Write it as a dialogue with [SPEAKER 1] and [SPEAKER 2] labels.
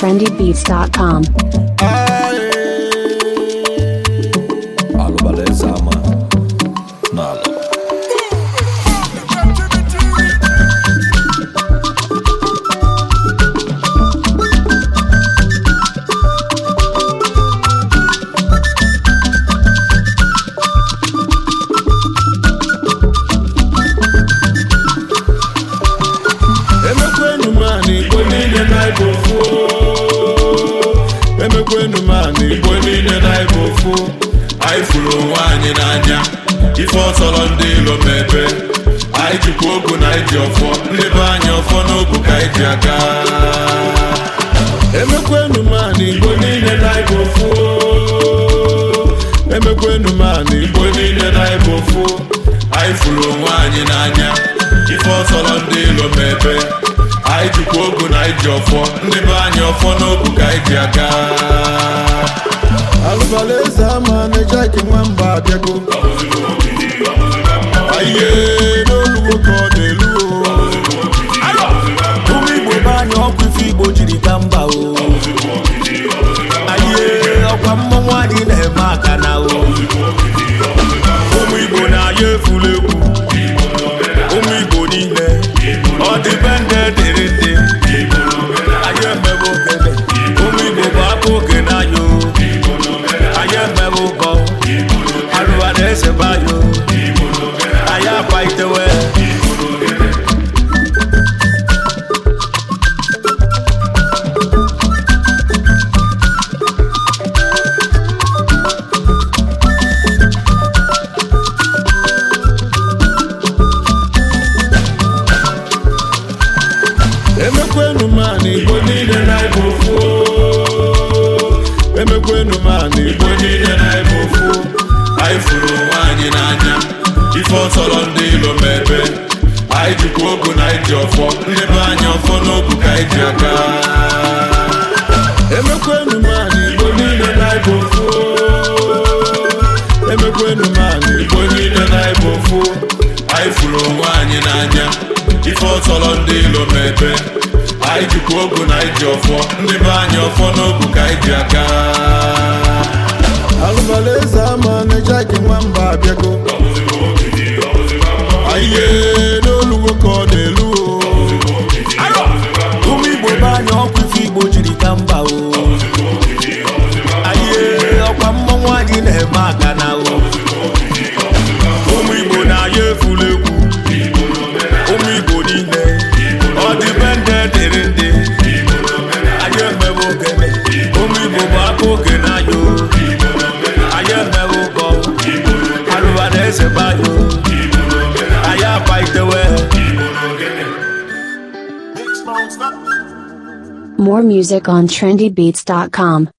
[SPEAKER 1] trendybeats.com.
[SPEAKER 2] anyị jikwa ogo na iji ọfọ ndị be anyị ọfọ n'ogo ka iji ji aga emekwenu m ana igbo niile na ịbụ ofu emekwenu m ana igbo niile na ịbụ ofu anyị furu onwe anyị n'anya ife ọsọrọ ndị ilo m ebe anyị jikwa ogo na iji ọfọ ndị be anyị ọfọ n'ogo ka iji aga alụbala eze ama na-eji aka
[SPEAKER 1] nwa mba abịago o jiri ba mba o anyị ọkwa mmọnwụ anyị na-eme aka na o
[SPEAKER 2] emekwenu m ana igbo niile na ịbụ ofu emekwenu m ana igbo niile na ịbụ ofu anyị furu onwe anyị n'anya ife ọtọrọ ndị ilo mebe anyị jikwa ogu na iji ọfọ ndị anyị ọfọ n'ogu Ijikwa ogo na iji ọfọ ndị be anyị ọfọ n'ogu ka anyị ji aka alụbalaeze ama na-eje nwa Mba abịago ihe n'olugo
[SPEAKER 1] ka ọ na-elu ụmụ igbo ebe anyị ọkụ igbo jiri ka mba o anyị ọkwa mmọnwụ anyị na-eme aka na eze banyị anyị agbaitewe More music on trendybeats.com.